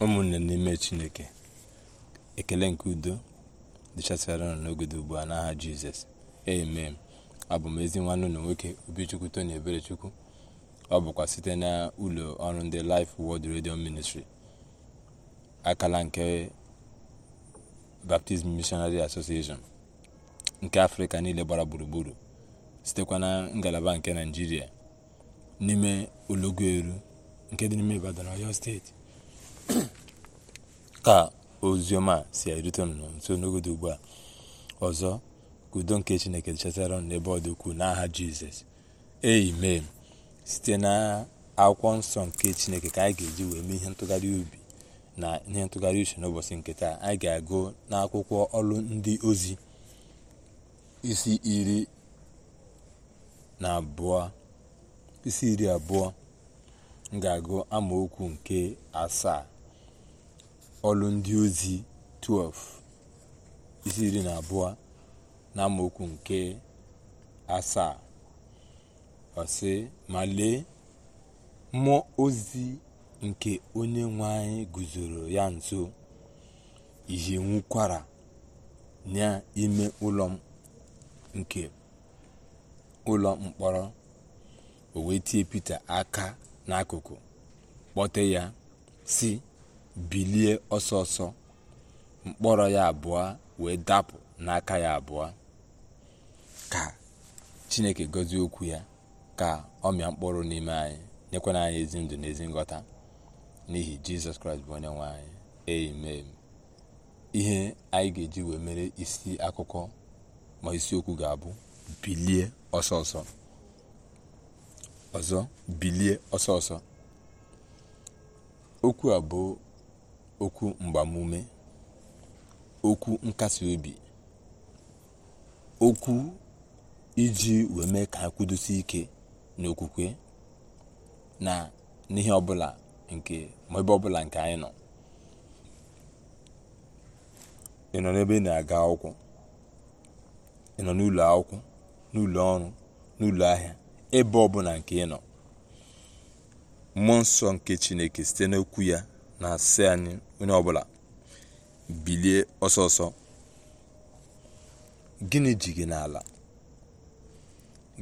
ụmụnne n'ime chineke ekele nke udo dịchasịara nọ n'ogede ugbu a n'aha jizọs amen abụ m ezi nwanne ụlọ nwoke obichukwu ebere eberechukwu ọ bụkwa site na ụlọ ọrụ ndị Life world Radio Ministry akala nke Baptist Missionary Association nke afrịka niile gbara gburugburu sitekwa na ngalaba nke naijiria n'ime olọgwu eru nke dị n'ime Ibadan Ọyọ steeti ka oziọma si erute unu nso n'ogodo ugbu a ọzọ ka udo nke chineke chetara unu n'ebe ọ dị ukwuu n'aha jizọs eimee site na akwụkwọ nsọ nke chineke ka anyị ga-eji wee mee ihe ntụgharị ubi na ihe ntụgharị uche n'ụbọchị nke taa anyị ga-agụ n'akwụkwọ ọlụ ndị ozi isi iri na abụọ isi iri abụọ m ga-agụ amaokwu nke asaa ọlụ ndị ozi 12 isi iri na abụọ na mokwu nke asaa ọsị ma lee mmụọ ozi nke onye nwe anyị guzoro ya nso ihe nwukwara n'ime ụlọ nke ụlọ mkpọrọ o wee tie pita aka n'akụkụ kpọte ya si bilie ọsọ mkpọrọ ya abụọ wee dapụ n'aka ya abụọ ka chineke gọzie okwu ya ka ọ mịa mkpụrụ n'ime anyị nyekwana anyị ezi ndụ na ezi n'ihi jizọs kraịst bụ onye nwe anyị amen ihe anyị ga-eji wee mere isi akụkọ ma isiokwu ga-abụ bilie ọsọ ọzọ bilie ọsọ okwu a bụ okwu mgbamume okwu nkasi obi okwu iji wee mee ka ha ike n'okwukwe na n'ihe ọbụla nke ma ebe ọbụla nke anyị nọ ị nọ n'ebe ị na-aga akwụkwọ ị nọ n'ụlọ akwụkwọ n'ụlọ ọrụ n'ụlọ ahịa ebe ọbụla nke ị nọ mmụọ nsọ nke chineke site n'okwu ya na-asị anyị onye ọbụla bilie ọsọsọ ọsọ gịnị ji gị n'ala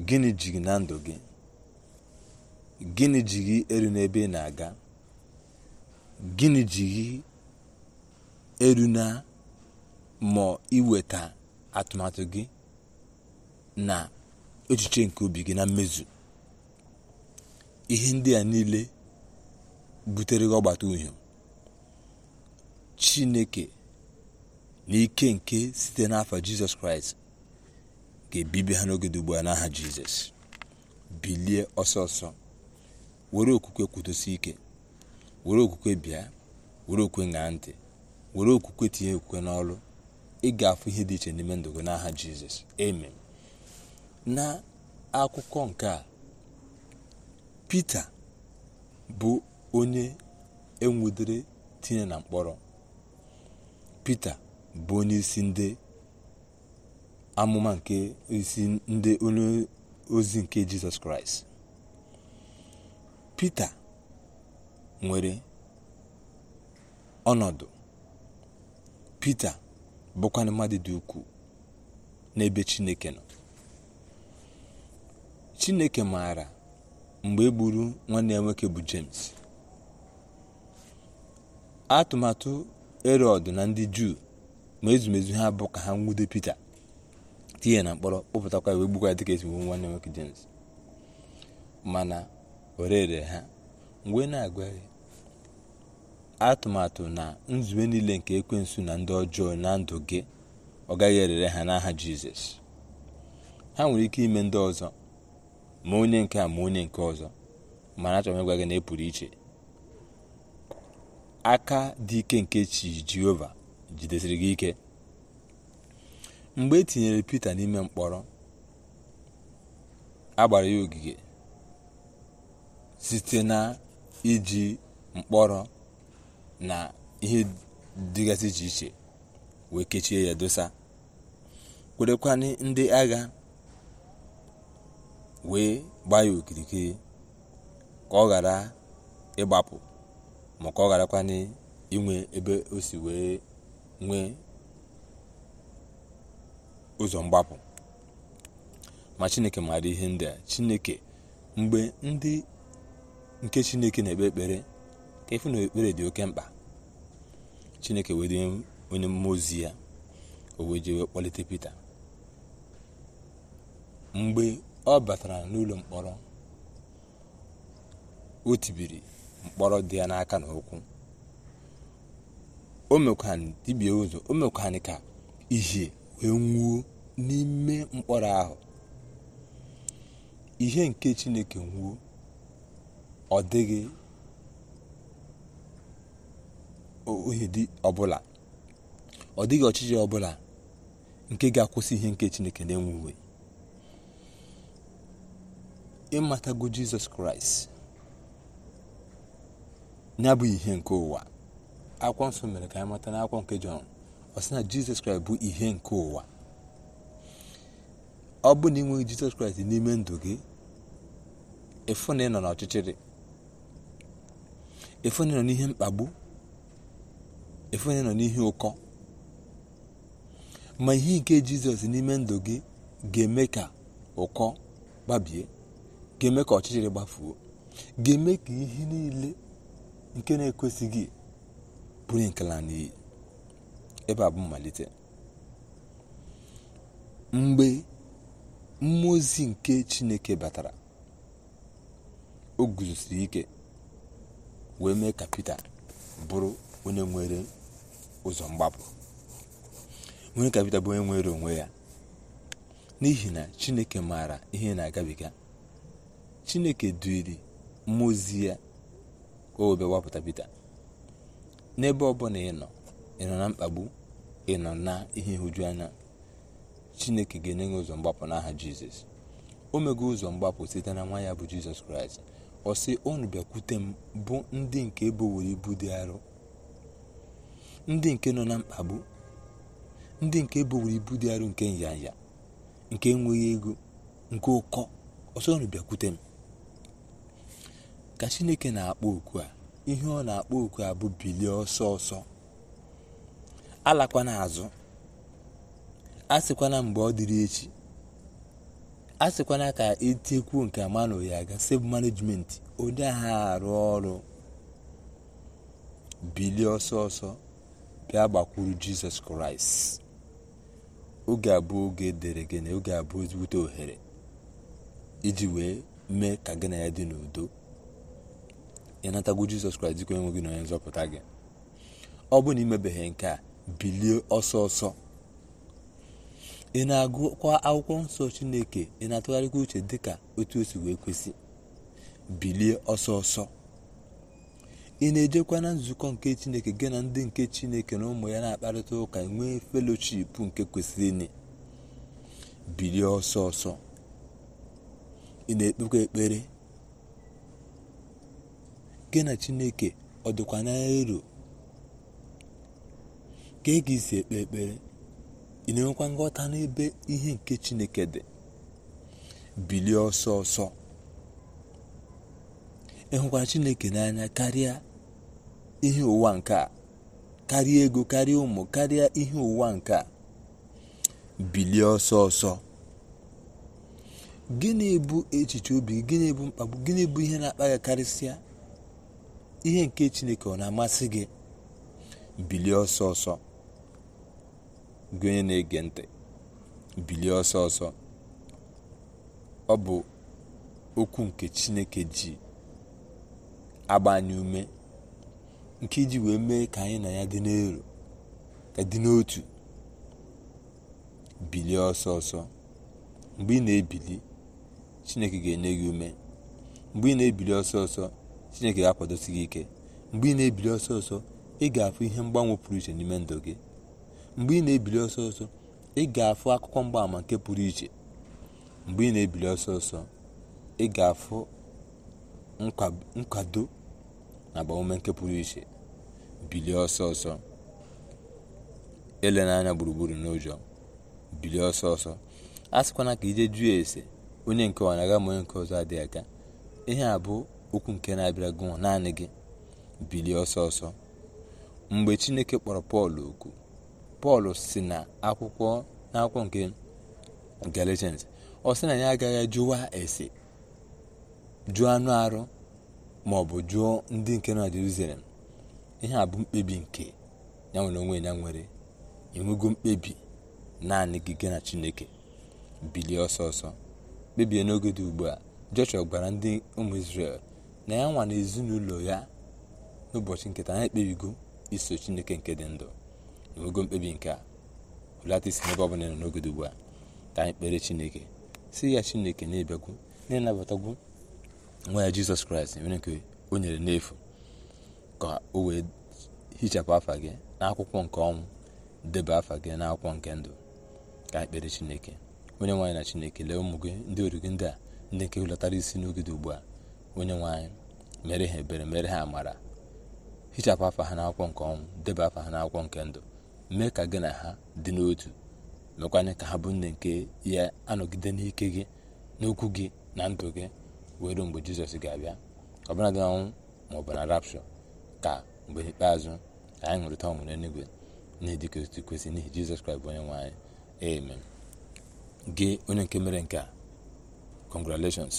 gịnị ji gị na ndụ gị gịnị ji gị eru n'ebe ị na-aga gịnị ji gị eru na ma iweta atụmatụ gị na echiche nke obi gị na mmezu ihe ndị a niile butere gị ọgbata uhie chineke n'ike nke site n'afọ jizọs kraịst ga-ebibi ha n'oge dugbu a n'aha jizọs bilie ọsọ were okwukwe kwudosi ike were okwukwe bịa were okwukwe ṅaa ntị were okwukwe tinye okwukwe n'ọrụ ị ga ihe dị iche n'ime ndụ n'aha jizọs amen na akụkọ nke a pita bụ onye enwudere tinye na mkpọrọ pita bụ onyeisi ndị amụma nke isi ndị onye ozi nke jizọs kraịst pita nwere ọnọdụ pita bụkwanụ mmadụ dị ukwuu n'ebe chineke nọ chineke maara mgbe e gburu nwanne ya nwoke bụ james atụmatụ erod na ndị juu ma ezumezu ha bụ ka ha nwude pite tinye na mkpọrọ kpọpụtakwa ya wee gbukwa ya dịka esi gbu nwanne nwoke jems mana orere ha mgbe e na-agwa atụmatụ na nzube niile nke ekwensu na ndị ọjọọ na ndụ gị ọ gaghị erere ha n'aha jizọs ha nwere ike ime ndị ọzọ ma onye nke a ma onye nke ọzọ mana achọrọ m ịgwa gị na ị e pụrụ iche aka dị ike nke chi jehova jidesiri gị ike mgbe e tinyere pita n'ime mkpọrọ agbara ya ogige site na iji mkpọrọ na ihe dịgasị iche iche wee kechie ya dosa kwerekwanị ndị agha wee gbaa ya okirikiri ka ọ ghara ịgbapụ maka ọ gharakwana inwe ebe o si wee nwee ụzọ mgbapụ ma chineke maara ihe ndị a chineke mgbe ndị nke chineke na-ekpe ekpere ka efu na ekpere dị oke mkpa chineke were onye mmụọ ozi ya o wee jee kpọlite pita mgbe ọ batara n'ụlọ mkpọrọ o tibiri mkpọrọ dị ya n'aka na ụkwụ o mekwanị ụzọ o mekwanị ka ihe wee n'ime mkpọrọ ahụ ihe nke chineke nwuo ọ dịghị ọbụla ọ dịghị ọchịchị ọbụla nke ga-akwụsị ihe nke chineke na-enwuwe ịmatago jizọs kraịst ya bụ ihe nke ụwa akwụkwọ nsọ mere ka anyị mata akwụkwọ nke jọn ọ sị na jizọs kraịst bụ ihe nke ụwa ọ bụ na ịnweghị jizọs kraịst n'ime ndụ gị efu na ịnọ n'ọchịchịrị efu na ịnọ n'ihe mkpagbu efu na ịnọ n'ihe ụkọ ma ihe nke jizọs n'ime ndụ gị ga-eme ka ụkọ gbabie ga-eme ka ọchịchịrị gbafuo ga-eme ka ihe niile nke na-ekwesịghị bụrụ nkela n'iyi ebe a bụ mmalite mgbe mmụọ nke chineke batara o guzosiri ike wee mee ka Pita bụrụ onye nwere ụzọ mgbapụ nwere ka Pita bụ onye nwere onwe ya n'ihi na chineke maara ihe na-agabiga chineke duiri mmụọ ya o obe wapụta Pita n'ebe ọbụla ị nọ ị nọ na mkpagbu ị nọ na ihe nhụju anya chineke ga-enye gị ụzọ mgbapụ n'aha jizọs o mego ụzọ mgbapụ site na nwa ya bụ jizọs kraịst ọ sị unu bịakwute m bụ ndị nke ebowere ibu dị arọ ndị nke nọ na mkpagbu ndị nke ebowere ibu dị arọ nke nyanya nke enweghị ego nke ụkọ ọsọ unu bịakwute m ka chineke na-akpọ oku a ihe ọ na-akpọ oku a bụ bilie ọsọ ọsọ alakwana azụ a sịkwana mgbe ọ dịrị echi a sịkwana ka etekwuo nke manụ ya ga save management onye ha arụ ọrụ bilie ọsọ ọsọ bịa gbakwuru jizọs kraịst oge abụọ oge dere gị na oge abụọ ezigbote ohere iji wee mee ka gị na ya dị n'udo ịnatago jizọs kraịst dịka onye nwe gị na onye nzọpụta gị ọ bụrụ na imebeghị nke a bilie ọsọ ọsọ ị na-agụkwa akwụkwọ nsọ chineke ị na-atụgharịkwa uche dịka otu o wee kwesị bilie ọsọ ọsọ ị na-ejekwa na nzukọ nke chineke gị na ndị nke chineke na ụmụ ya na-akparịta ụka nwee felochip nke kwesịrị bilie ọsọ ọsọ ị na-ekpekwa ekpere gị na chineke ọ dịkwa n'elu ka ị e ga isi ekpe ekpere ị na-enwekwa nghọta n'ebe ihe nke chineke dị bilie ọsọ ọsọ ịhụkwa chineke n'anya karịa ihe ụwa nke a karịa ego karịa ụmụ karịa ihe ụwa nke a bilie ọsọ ọsọ gịnị bụ echiche obi gịnị bụ mkpagbu gịnị bụ ihe na-akpa ya karịsịa ihe nke chineke ọ na-amasị gị bilie ọsọ ọsọ gị onye na-ege ntị bilie ọsọ ọsọ ọ bụ okwu nke chineke ji agba ume nke iji wee mee ka anyị na ya dị n'elu ka dị n'otu bilie ọsọ ọsọ mgbe ị na-ebili chineke ga-enye gị ume mgbe ị na-ebili ọsọ ọsọ chineke ga-akwadosi gị ike mgbe ị na-ebili ọsọ ọsọ ị ga-afụ ihe mgbanwe pụrụ iche n'ime ndụ gị mgbe ị na-ebili ọsọ ọsọ ị ga-afụ akụkọ mgbaàmà nke pụrụ iche mgbe ị na-ebili ọsọ ọsọ ị ga-afụ nkwado na agbamume nke pụrụ iche bilie ọsọ ọsọ ele n'anya gburugburu n'ụjọ bilie ọsọ ọsọ a sịkwana ka ije jụọ ese onye nke ọ na-aga ma onye nke ọzọ adịghị aga ihe a bụ okwu nke na-abịara gị naanị gị bilie ọsọ ọsọ mgbe chineke kpọrọ pọl oku pọl si na akwụkwọ n'akwụkwọ nke galatians ọ sị na ya agaghị jụwa ese jụọ anụ arụ ma ọ bụ jụọ ndị nke nọ na jerusalem ihe a bụ mkpebi nke ya nwere onwe ya nwere enwego mkpebi naanị gị gị na chineke bilie ọsọ ọsọ kpebie n'oge dị ugbu a joshua gwara ndị ụmụ israel na ya nwa na ezinụlọ ya n'ụbọchị nketa taa ekpebigo iso chineke nke dị ndụ n'ogo mkpebi nke a hụlata isi n'ebe ọ bụla nọ n'oge ugbu a ka anyị kpere chineke si ya chineke na-ebịakwu na-enabatagwu nwa ya jizọs kraịst nwere nke o nyere n'efu ka o wee hichapụ afa gị n'akwụkwọ nke ọnwụ deba afa gị n'akwụkwọ nke ndụ ka anyị kpere chineke onye nwaanyị na chineke lee ụmụ gị ndị oru gị ndị a ndị nke hụlatara isi n'oge ugbu a onye nwe mere ha ebere mere ha amara hichapụ afa ha n'akwụkwọ nke ọnwụ deba afa ha n'akwụkwọ nke ndụ mee ka gị na ha dị n'otu mekwanye ka ha bụ nne nke ya anọgide n'ike gị n'okwu gị na ndụ gị wee mgbe jizọs ga-abịa ọbụla dị ọnwụ ma ọ bụ na rapshọ ka mgbe ikpeazụ anyị ṅụrịta ọṅụ n'eluigwe na-edika otu kwesị n'ihi jizọs kraịst bụ onye nwe anyị amen gị onye nke mere nke a congratulations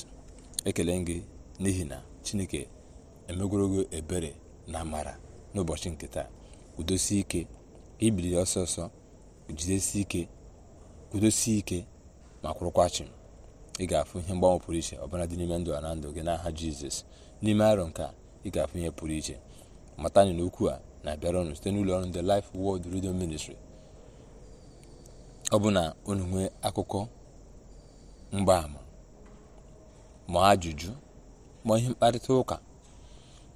ekele gị n'ihi na chineke emegworogo ebere na amara n'ụbọchị nke taa udosie ike ibili ọsọsọ jidesie ike kwudosie ike ma kwụrụkwa ị ga-afụ ihe mgbanwe pụrụ iche ọbụla dị n'ime ndụ a na ndụ gị n'aha jizọs n'ime arọ nke a ị ga-afụ ihe pụrụ iche mata anyị n'okwu a na-abịara ọnụ site n'ụlọ ọrụ ndị Life wọld Radio ministri ọ bụ na unu nwee akụkọ mgbaama ma ajụjụ ma ihe mkparịta ụka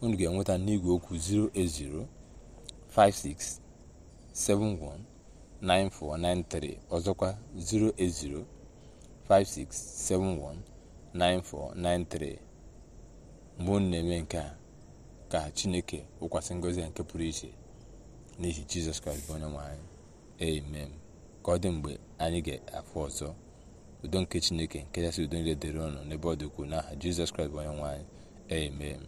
unu ga-enweta n'igwe okwu 56719493 ọzọkwa 08056719493 mgbe unu na-eme nke a ka chineke wụkwasị ngọzi nke pụrụ iche n'ihi jizọs kraịst bụ onye nwe amen ka ọ dị mgbe anyị ga-afụ ọzọ udo nke chineke nke si udo niile dịrị ụnụ n'ebe ọ dị ukwuu n'aha jizọs kraịst bụ onye nwaanyị anyị amen